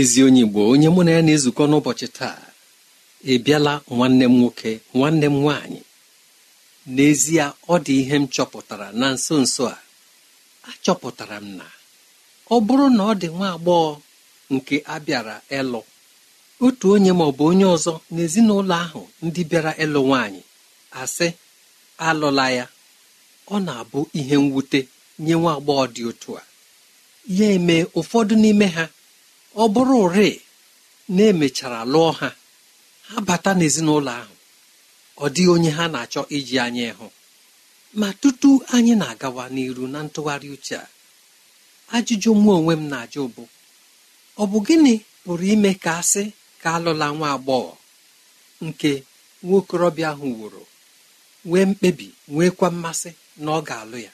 ezi onye Igbo onye mụ na ya na-ezukọ n'ụbọchị taa ịbịala nwanne m nwoke nwanne m nwaanyị n'ezie ọ dị ihe m chọpụtara na nso nso a achọpụtara m na ọ bụrụ na ọ dị nwa agbọghọ nke abịara ịlụ otu onye ma ọ bụ onye ọzọ n'ezinụlọ ahụ ndị bịara ịlụ nwaanyị asị alụla ya ọ na-abụ ihe mwute nye nwa agbọghọ dị otu a ya eme ụfọdụ n'ime ha ọ bụrụ ụrị na emechara lụọ ha ha bata n'ezinụlọ ahụ ọ dịghị onye ha na-achọ iji anya ịhụ ma tutu anyị na-agawa n'iru na ntụgharị uche a ajụjụ mụ onwe m na-ajụ bụ ọ bụ gịnị pụrụ ime ka asị ka alụla nwa agbọghọ nke nwaokorobịa ahụ wụrụ nwee mkpebi nweekwa mmasị na ọ ga-alụ ya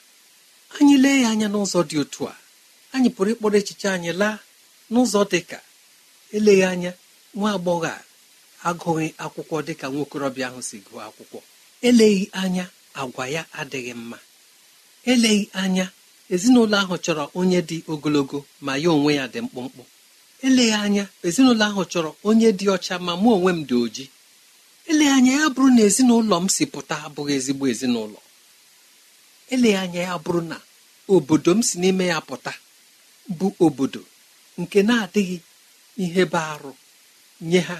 anyị lee ya anya n'ụzọ dị otu a anyị pụrụ ịkpọrọ echiche anyị laa n'ụzọ dịka eleghị anya nwa agbọghọ a agụghị akwụkwọ dịka nwokorobịa ahụ si gụọ akwụkwọ eleghị anya agwa ya adịghị mma eleghị anya ezinụlọ ahụ chọrọ onye dị ogologo ma ya onwe ya dị mkpụmkpụ eleghị anya ezinụlọ ahụ chọrọ onye dị ọcha ma mụ onwe m dị oji eleghị anya ya bụrụ na ezinụlọ m si pụta abụghị ezigbo ezinụlọ eleghị anya ya bụrụ na obodo m si n'ime ya pụta bụ obodo nke na-adịghị ihe bụ arụ nye ha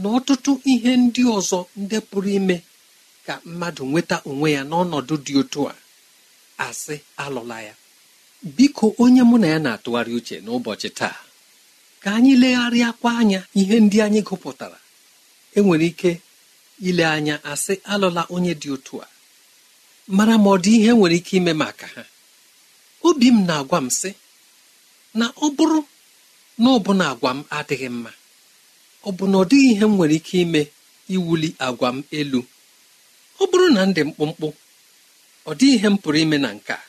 na ọtụtụ ihe ndị ọzọ ndị pụrụ ime ka mmadụ nweta onwe ya n'ọnọdụ dị otu a asị alụla ya biko onye mụ na ya na-atụgharị uche n'ụbọchị taa ka anyị legharịa legharịakwa anya ihe ndị anyị gụpụtara enwere ike ile anya asị alụla onye dị otu a mara ma ọ dị ihe nwere ike ime maka ha obi m na-agwa m sị na ọ bụrụ na ọbụna agwa m adịghị mma ọ bụ na ọ dịghị ihe m nwere ike ime iwuli agwa m elu ọ bụrụ na ndị mkpụmkpụ ọ dịghị ihe m pụrụ ime na nke a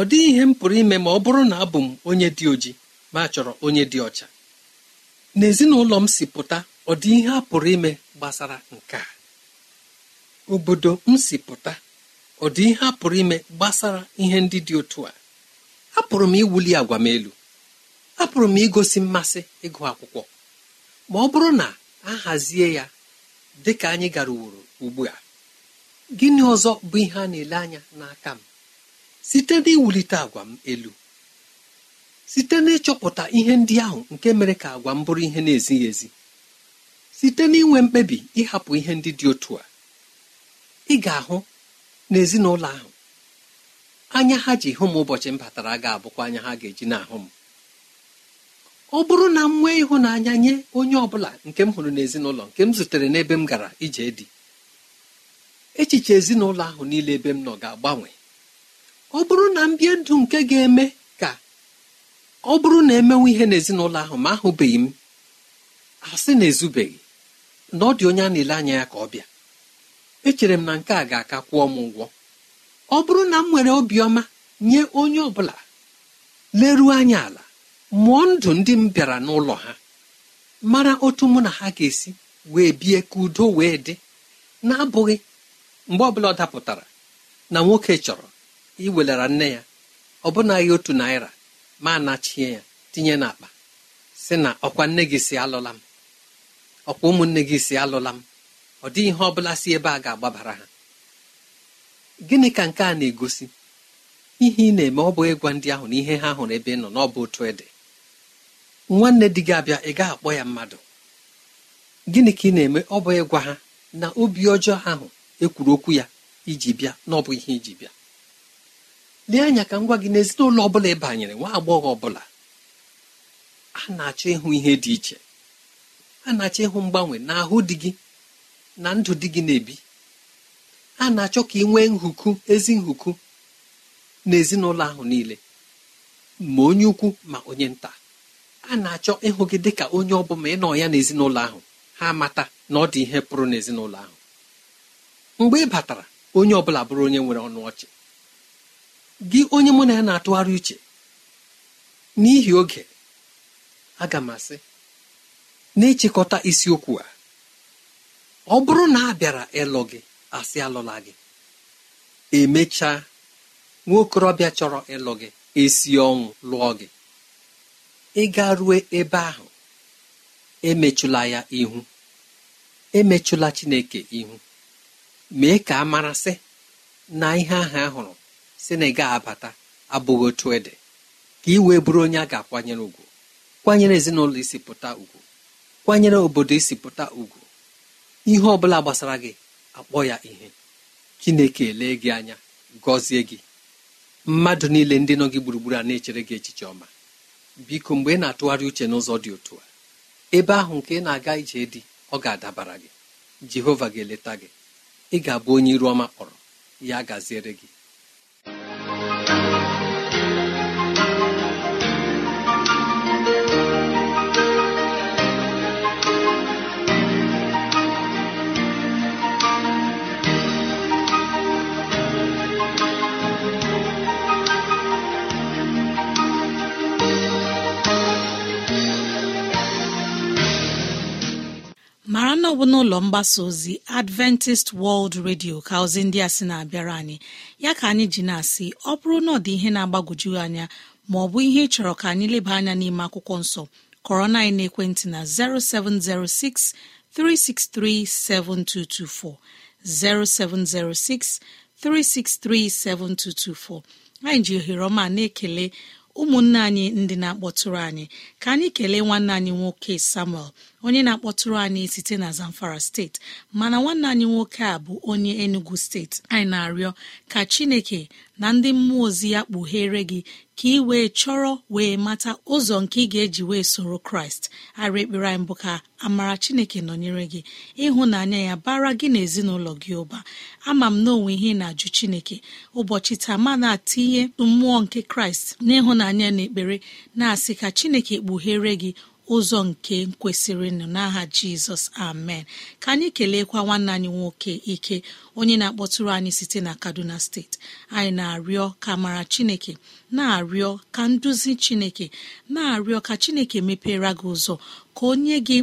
ọ dịghị ihe m pụrụ ime ma ọ bụrụ na abụ m onye dị oji ma chọrọ onye dị ọcha n'ezinụlọ m si pụta ọ dị ihe a pụrụ ime gbasara nke a obodo m si pụta ọ dị ihe a pụrụ ime gbasara ihe ndị dị otu a apụrụ m iwuli agwa m elu apụrụ m igosi mmasị ịgụ akwụkwọ ma ọ bụrụ na a hazie ya dị ka anyị gara uworo ugbu a gịnị ọzọ bụ ihe a na-ele anya n'aka m site n'iwulite agwa m elu site n'ịchọpụta ihe ndị ahụ nke mere ka agwa m bụrụ ihe na-ezighị ezi site n'inwe mkpebi ịhapụ ihe ndị dị otu a ị ga-ahụ n'ezinụlọ ahụ anya ha ji hụ m ụbọchị m batara ga-abụkwa anya ha ga-eji na-ahụ m ọ bụrụ na m nwee ịhụnanya nye onye ọ bụla nke m hụrụ n'ezinụlọ nke m zutere n'ebe m gara ije dị echiche ezinụlọ ahụ niile ebe m nọ ga-agbanwe ọ bụrụ na m bie ndụ nke ga-eme ka ọ bụrụ na emenwe ihe n'ezinụlọ ahụ ma ahụbeghị m asị na ezubeghị na ọ dị onye a na-ele anya ya ka ọ bịa echere m na nke a ga-aka kwụọ m ụgwọ ọ bụrụ na m nwere obiọma nye onye ọ bụla leruo anya ala mụọ ndụ ndị m bịara n'ụlọ ha mara otu mụ na ha ga-esi wee bie ka udo wee dị na-abụghị mgbe ọbụla ọ dapụtara na nwoke chọrọ iwelara nne ya ọbụnaghị otu naira ma anachie ya tinye n'akpa si na ọkwa nne gị si alụla m ọkwa ụmụnne gị si alụla m ọ dịghị ihe ọ bụla si ebe a ga-agbabara ha gịnị ka nke a na-egosi ihe ị na-eme ọ bụ ịgwa ndị ahụ na ihe ha hụrụ ebe ị nọ n'ọbụ otu ịdị nwanne di gị abịa ị gaa akpọ ya mmadụ gịnị ka ị na-eme ọ bụ ịgwa ha na obi ọjọọ ahụ ekwuru okwu ya iji bịa na ọ bụ ihe iji bịa lee anya ka ngwa gị n'ezinụlọ ọ bụla ị banyere nwa agbọghọ ọbụla a na-achọ ịhụ ihe dị iche a na-achọ ịhụ mgbanwe na ahụ di gị na ndụ di gị na-ebi a na-achọ ka ị nwee nhuku ezi nhuku n'ezinụlọ ahụ niile ma onye ukwu ma onye nta a na-achọ ịhụ gị dị ka onye ọ bụla ịnọ ya n'ezinụlọ ahụ ha amata na ọ dị ihe pụrụ n'ezinụlọ ahụ mgbe ị batara onye ọ bụla bụrụ onye nwere ọnụ ọchị gị onye mụ na ya na-atụgharị uche n'ihi oge aga m asị na isiokwu a ọ bụrụ na a bịara ịlụ gị asị alụla gị emechaa nwa okorobịa chọrọ ịlụ gị esi ọnwụ lụọ gị Ị ịga rue ebe ahụ emechụla ya ihu emechụla chineke ihu mee ka a marasị na ihe ahụ ahụrụ si na ị abata abụghị otu ede ka ị wee bụrụ onye a ga-akwanyere ugwu kwanyere ezinụlọ isi pụta ugwu kwanyere obodo isi pụta ugwu ihe ọbụla gbasara gị akpọ ya ihe chineke lee gị anya gọzie gị mmadụ niile ndị nọ gị gburugburu a na-echere gị echiche ọma biko mgbe ị na-atụgharị uche n'ụzọ dị otu a ebe ahụ nke ị na-aga ije dị ọ ga-adabara gị jehova ga-eleta gị ị ga-abụ onye iru ọma kpọrọ ya gaziere gị ọ bụla mgbasa ozi adventist world radio ka ozi ndị a sị na-abịara anyị ya ka anyị ji na-asị ọ bụrụ na ọ dị ihe na-agbagwoju anya ma ọ bụ ihe ị ka anyị leba anya n'ime akwụkwọ nsọ kọrọ na ekwentị na 0706 363 7224, 0706 363 7224. anyị ji ohere ọma na-ekele ụmụnne anyị ndị na-akpọtụrụ anyị ka anyị kelee nwanne anyị nwoke samuel onye na-akpọtụrụ anyị site na zamfara steeti mana nwanne anyị nwoke a bụ onye enugu steeti anyị na-arịọ ka chineke na ndị mmụọ ozi ya kpughere gị ka ị wee chọrọ wee mata ụzọ nke ị ga-eji wee soro kraịst arị ekpere anyị mbụ ka amara chineke nọnyere gị ịhụnanya ya bara gị na ezinụlọ gị ụba ama m na onwe ihe na-ajụ chineke ụbọchị taa ma na-atinye mmụọ nke kraịst n'ịhụnanya na ekpere na-asị ka chineke kpughere gị ụzọ nke kwesịrị nụ n'aha jizọs amen ka anyị keleekwa nwanne anyị nwoke ike onye na-akpọtụrụ anyị site na kaduna steeti anyị na-arịọ ka mara chineke na-arịọ ka nduzi chineke na-arịọ ka chineke mepere gị ụzọ ka onye gị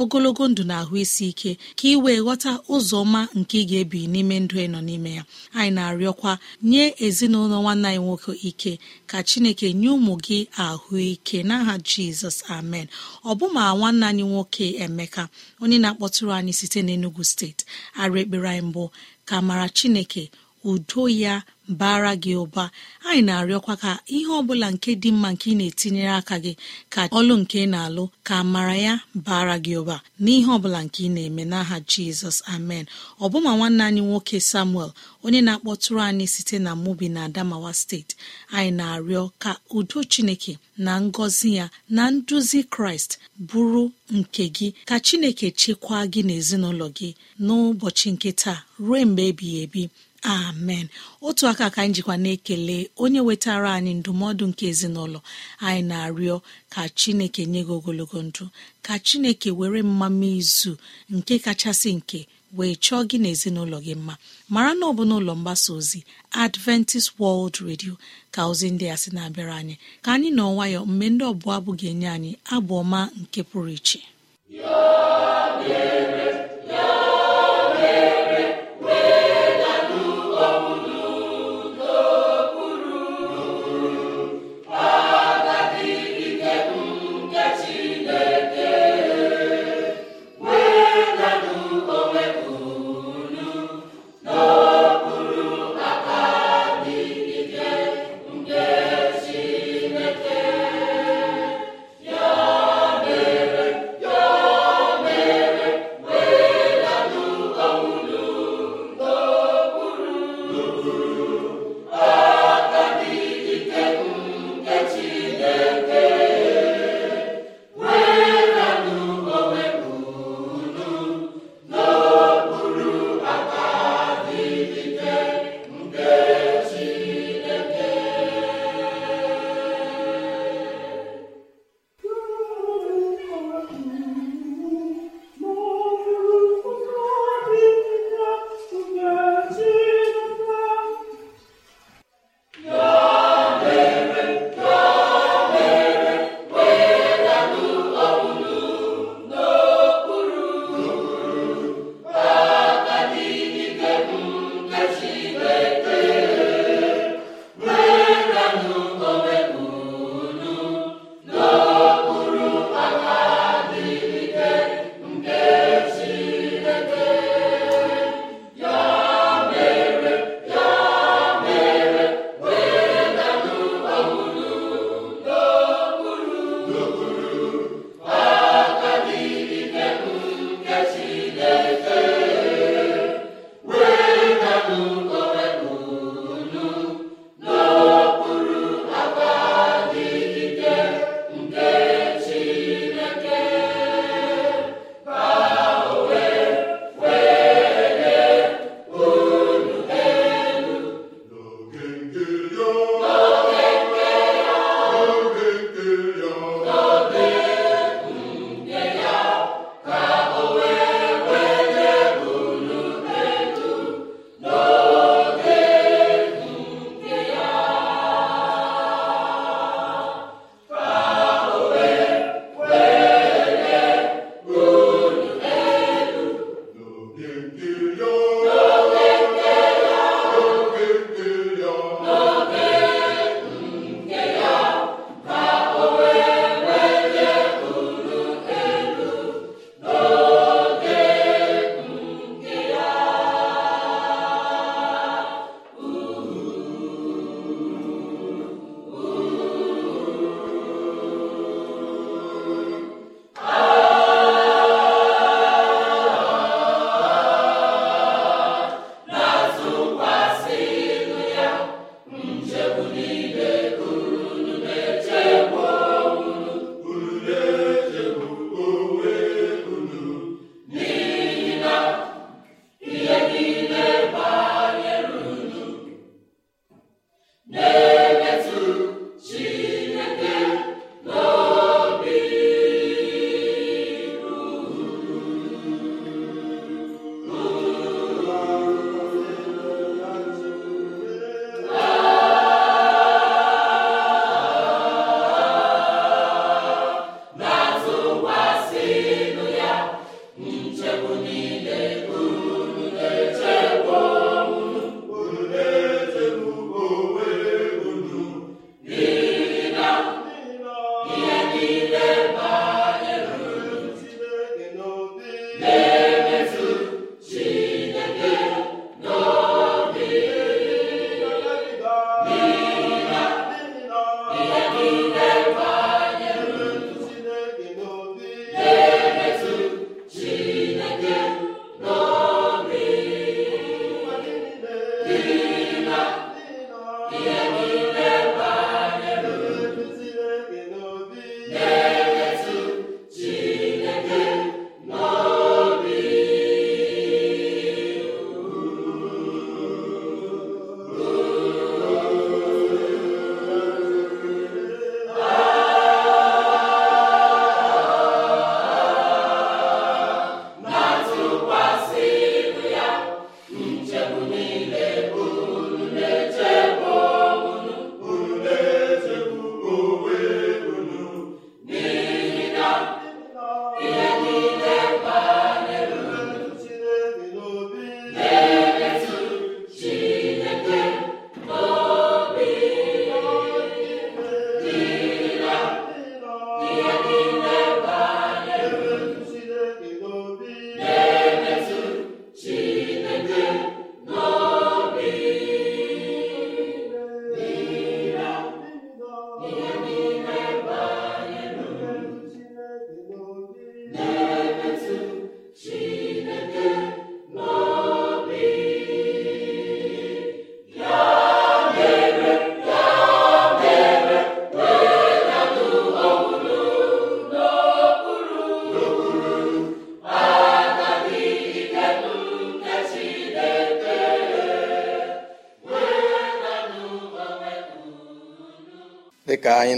ogologo ndụ na ahụ isi ike ka ị wee ghọta ụzọ ọma nke ị ga-ebi n'ime ndụ ị nọ n'ime ya anyị na-arịọkwa nye ezinụlọ nwanne anyị nwoke ike ka chineke nye ụmụ gị ahụike n'aha jizọs amen ọ ọbụma nwanne anyị nwoke emeka onye na-akpọtụrụ anyị site n'Enugu steeti arụ ekpere anyị mbụ ka mara chineke udo ya bara gị ụba anyị na-arịọkwa ka ihe ọbụla nke dị mma nke ị na-etinyere aka gị ka ọlụ nke na-alụ ka mara ya bara gị ụba n'ihe ọbụla nke ị na-eme n'aha jizọs amen ọbụma nwanne anyị nwoke samuel onye na-akpọtụrụ anyị site na mubi na adamawa steeti anyị na-arịọ ka udo chineke na ngọzi ya na nduzi kraịst bụrụ nke gị ka chineke chekwaa gị n'ezinụlọ gị n'ụbọchị nke taa ruo mgbe ebighị ebi amen otu aka ka anyị jikwa na-ekele onye wetara anyị ndụmọdụ nke ezinụlọ anyị na-arịọ ka chineke nye gị ogologo ndụ ka chineke were mmama izu nke kachasị nke wee chọọ gị na ezinụlọ gị mma mara na ọ bụ n'ụlọ mgbasa ozi adventist world radio ka ozi ndị a sị na-abịara anyị ka anyị nọ nwayọ mgbe ndị ọbụla abụ ga-enye anyị abụ ọma nke pụrụ iche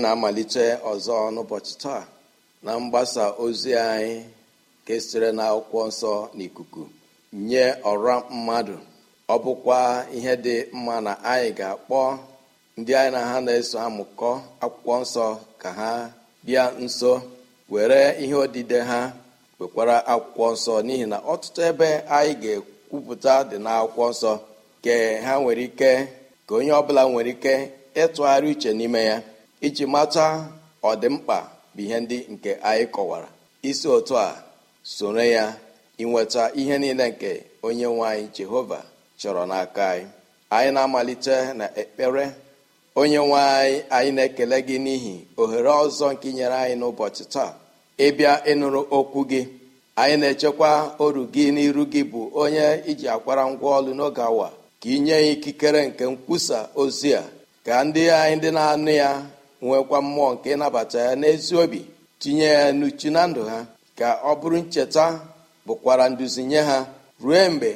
na-amalite ọzọ n'ụbọchị taa na mgbasa ozi anyị nke sitere na akwụkwọ nsọ n'ikuku nye ọra mmadụ ọ bụkwa ihe dị mma na anyị ga-akpọ ndị anyị na ha na-eso amụkọ akwụkwọ nsọ ka ha bịa nso were ihe odide ha wekwara akwụkwọ nsọ n'ihi na ọtụtụ ebe anyị ga-ekwupụta dị n'akwụkwọ nsọ ha nwere ike ka onye ọbụla nwere ike ịtụgharị uche n'ime ya iji mata ọdịmkpa bụ ihe ndị nke anyị kọwara isi otu a soro ya inweta ihe niile nke onye nwe anyị jehova chọrọ n'aka anyị anyị na-amalite na ekpere onye nwe anyị anyị na-ekele gị n'ihi ohere ọzọ nke nyere anyị n'ụbọchị taa ịbịa ịnụrụ okwu gị anyị na-echekwa oru gị n'iru gị bụ onye iji akwara ngwa ọlụ n'oge awa ka inye ya ikikere nke nkwusa ozi a ka ndị anyị ndị na-anụ ya nwekwa mmụọ nke ịnabata ya n'ezi obi tinye ya n'uchu na ndụ ha ka ọ bụrụ ncheta bụkwara nduzi nye ha ruo mgbe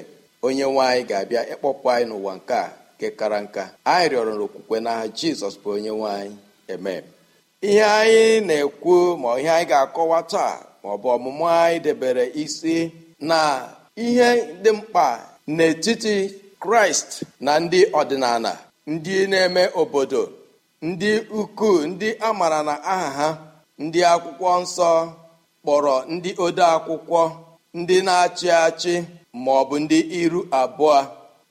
onye nwanyị ga-abịa ịkpọpụ anyị n'ụwa nke a kekara kara nka anyị rịọrọ n'okwukwe n'aha jizọs bụ onye nwanyị eme ihe anyị na-ekwu ma ihe anyị ga-akọwa taa ma ọ bụ ọmụmụ anyị debere isi na ihe dị mkpa n'etiti kraịst na ndị ọdịnala ndị na-eme obodo ndị ukwuu ndị a maara na aha ha ndị akwụkwọ nsọ kpọrọ ndị ode akwụkwọ ndị na-achị achị ma ọ bụ ndị iru abụọ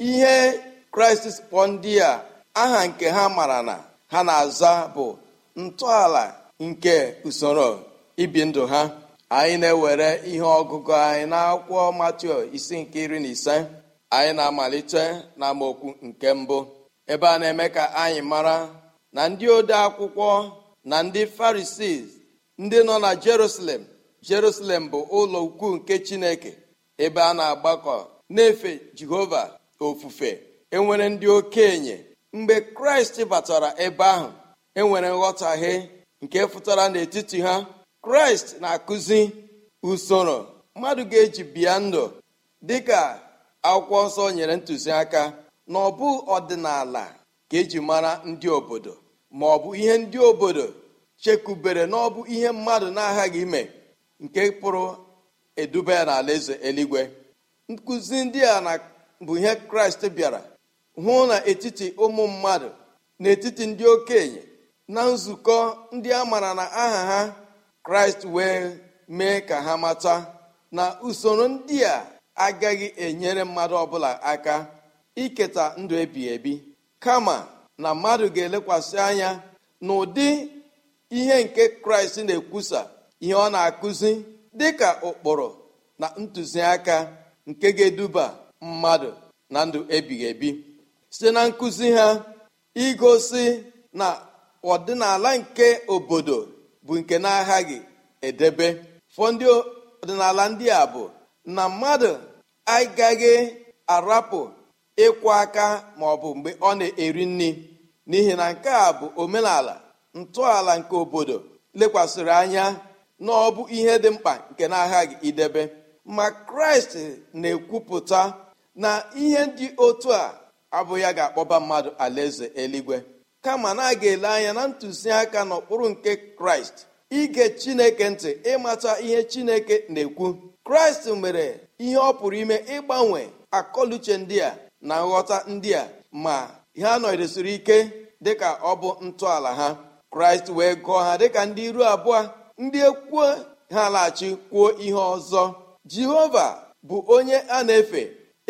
ihe kraịst kpọ ndị a aha nke ha mara na ha na-aza bụ ntọala nke usoro ibi ndụ ha anyị na-ewere ihe ọgụgụ anyị n'akwụkwọ matio isi nke iri na ise anyị na-amalite na nke mbụ ebe a na-eme ka anyị mara na ndị ode akwụkwọ na ndị farisis ndị nọ na jerusalem jerusalem bụ ụlọ ukwu nke chineke ebe a na-agbakọ na-efe jehova ofufe enwere ndị okenye mgbe kraịst batara ebe ahụ enwere nghọtahie nke fụtara n'etiti ha kraịst na-akụzi usoro mmadụ ga-eji bịa ndụ dịka akwụkwọ nsọ nyere ntụziaka na ọ ọdịnala ka eji mara ndị obodo ma ọ bụ ihe ndị obodo chekubere na ọ bụ ihe mmadụ na-aghaghị ime nke pụrụ eduba n'ala eze eluigwe nkụzi ndị a bụ ihe kraịst bịara hụ na etiti ụmụ mmadụ n'etiti ndị okenye na nzukọ ndị a maara na aha ha kraịst wee mee ka ha mata na usoro ndị a agaghị enyere mmadụ ọbụla aka iketa ndụ ebighị ebi kama na mmadụ ga-elekwasị anya na ụdị ihe nke kraịst na-ekwusa ihe ọ na-akụzi dịka ụkpụrụ na ntụziaka nke ga-eduba mmadụ na ndụ ebighị ebi site na nkụzi ha igosi na ọdịnala nke obodo bụ nke na-aghaghị edebe fọdụ ọdịnala ndị a bụ na mmadụ agaghị arapụ ịkwụ aka maọbụ mgbe ọ na-eri nri n'ihi na nke a bụ omenala ntọala nke obodo lekwasịrị anya na ọ bụ ihe dị mkpa nke na agha gị idebe ma kraịst na-ekwupụta na ihe ndị otu a abụghị ya ga-akpọba mmadụ alaeze eluigwe kama na a ga-ele anya na ntụziaka n'okpuru nke kraịst ige chineke ntị ịmata ihe chineke na-ekwu kraịst mere ihe ọ pụrụ ime ịgbanwe akọluche ndị a na nghọta ndị a ma ha nọdesiri ike dịka ọ bụ ntọala ha kraịst wee gụọ ha dịka ndị iru abụọ ndị ekwuo ha laghachi kwuo ihe ọzọ jehova bụ onye a na-efe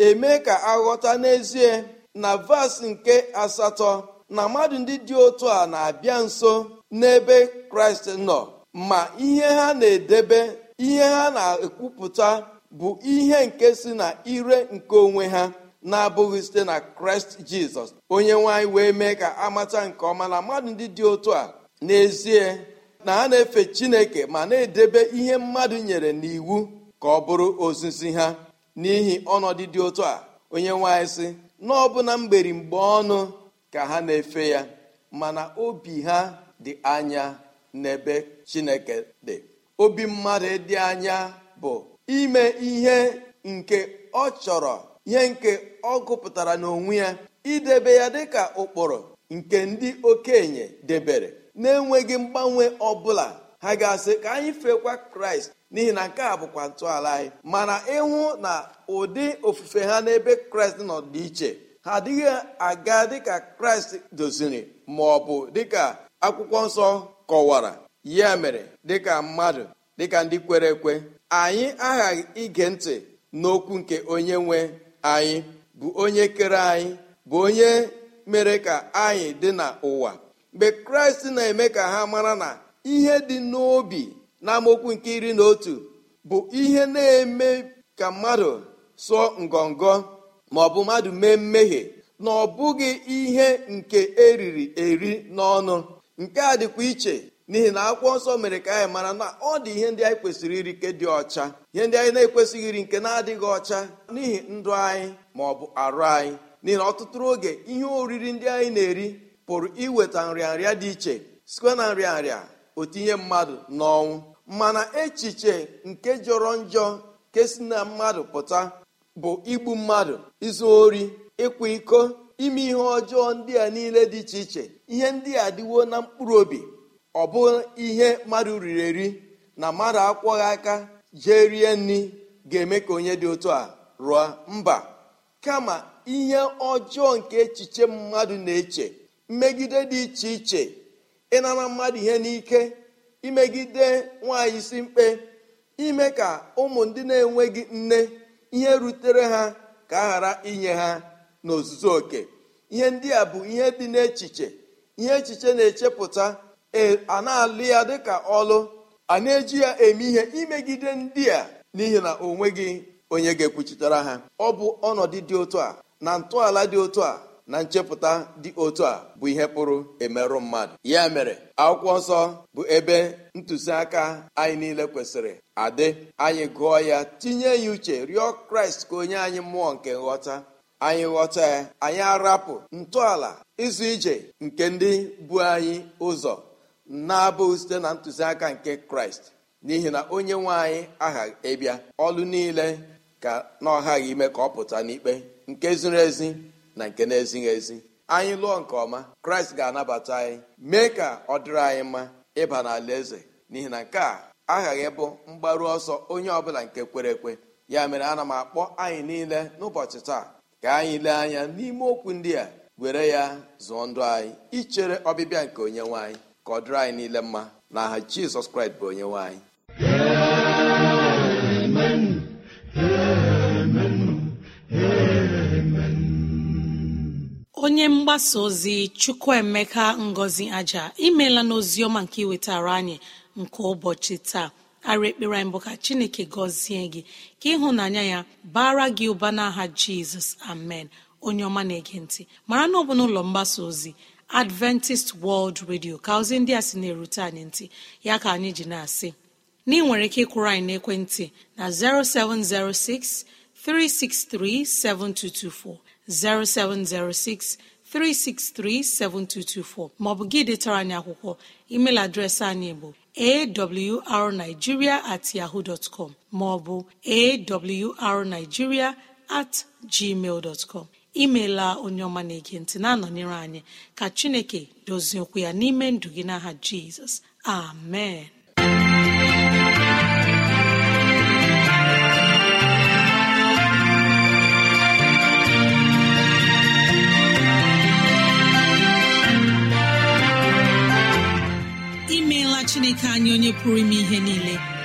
eme ka aghọta n'ezie na vas nke asatọ na mmadụ ndị dị otu a na-abịa nso n'ebe kraịst nọ ma ihe ha na-edebe ihe ha na-ekwupụta bụ ihe nke si na ire nke onwe ha na-abụghị site na kraịst jizọs onye nwanyị wee mee ka amata nke ọma na mmadụ ndị dị otu a n'ezie na ha na-efe chineke ma na-edebe ihe mmadụ nyere n'iwu ka ọ bụrụ ozizi ha n'ihi ọnọdụ dị otu a onye nwanyị sị na ọbụna mgberi mgbe ọnụ ka ha na-efe ya mana obi ha dị anya n'ebe chineke dị obi mmadụ dị anya bụ ime ihe nke ọ chọrọ ihe nke ọ gụpụtara n'onwe ya idebe ya dịka ụkpụrụ nke ndị okenye debere na-enweghị mgbanwe ọbụla ha ga-asị ka anyị fekwa kraịst n'ihi na nke a bụkwa ntọala anyị mana ịhụ na ụdị ofufe ha n'ebe kraịst nọ dị iche ha adịghị aga dịka kraịst doziri ma ọ bụ dịka akwụkwọ nsọ kọwara ya mere dịka mmadụ dịka ndị kwere ekwe anyị aghaghị ige ntị n'okwu nke onye nwe anyị bụ onye kere anyị bụ onye mere ka anyị dị n'ụwa mgbe kraịst na-eme ka ha mara na ihe dị n'obi na amokwu nke iri na otu bụ ihe na-eme ka mmadụ sụọ ngọngọ ma ọ bụ mmadụ mee mmehie na ọ bụghị ihe nke eriri eri n'ọnụ nke a dịkwa iche n'ihi na akwụkwọ nsọ mere ka anyị mara na ọ dị ihe ndị anyị kwesịrị iri nke dị ọcha ihe ndị anyị na-ekwesịghị iri nke na-adịghị ọcha n'ihi ndụ anyị ma ọ bụ arụ anyị n'ihi na ọtụtụ oge ihe oriri ndị anyị na-eri pụrụ iweta nrịanrịa dị iche sikwe na nrịanrịa otinye mmadụ n'ọnwụ mana echiche nke jọrọ njọ nke si na mmadụ pụta bụ igbu mmadụ izu ori ịkwa iko ime ihe ọjọọ ndị a niile dị iche iche ihe ndị a dịwo na mkpụrụ obi ọ bụ ihe mmadụ riri eri na mmadụ akwọghị aka jee rie nri ga-eme ka onye dị otu a rụọ mba kama ihe ọjọọ nke echiche mmadụ na-eche mmegide dị iche iche ịnara mmadụ ihe n'ike imegide nwaanyị isi mkpe ime ka ụmụ ndị na-enweghị nne ihe rutere ha ka a ghara inye ha n'ozuzu oke ihe ndị a bụ ihe dị n'echiche ihe echiche na-echepụta E, a na-alụ ya dịka ọlụ a na-eji ya eme ihe imegide ndị a n'ihi na o nweghị onye ga-ekwuchitere ha ọ bụ ọnọdụ dị otu a na ntọala dị otu a na nchepụta dị otu a bụ ihe pụrụ emerụ mmadụ ya mere akwụkwọ nsọ bụ ebe ntụziaka anyị niile kwesịrị adị anyị gụọ ya tinye ya uche rịọ kraịst ka onye anyị mmụọ nke nghọta anyị ghọta ya anyị arapụ ntọala ịzụ ije nke ndị bụ anyị ụzọ na-abụghị site na ntụziaka nke kraịst n'ihi na onye nwanyị anyị aghaghị ịbịa ọlụ niile ka na ọghaghị ime ka ọ pụta n'ikpe nke ziri ezi na nke na-ezighị ezi anyị lụọ nke ọma kraịst ga-anabata anyị mee ka ọ dịrị anyị mma ịba n'ala eze n'ihi na nke a aghaghị bụ mgbaru ọsọ onye ọbụla nke kwere ekwe ya mere ana m akpọ anyị niile n'ụbọchị taa ka anyị lee anya n'ime okwu ndị a were ya zụọ ndụ anyị ichere ọbịbịa nke onye nwanyị. ka ọ dịrị anyị niile mma aha jizọs kraịst bụ onye nwanyị anyị onye mgbasa ozi chukwuemeka ngozi aja imela n'oziọma nke iwetara anyị nke ụbọchị taa ara ekpere anyị bụ ka chineke gọzie gị ka ịhụnanya ya bara gị ụba n'aha jizọs amen onye ọma na-ege ntị mara na ọ bụ n'ụlọ mgbasa ozi adventist world radio ka ozi ndị a sị na-erute anyị ntị ya ka anyị ji na-asị na nwere ike ịkwụrụ anyị na 0706 363 7224 0706 363-7224 maọbụ gị detara anyị akwụkwọ email adreesị anyị bụ arigiria at yahoo bụ maọbụ at gmail imeela onye ọma na-ege na-anọnyere anyị ka chineke dozie okwu ya n'ime ndụ gị n'aha jizọs amen imeela chineke anyị onye pụrụ ime ihe niile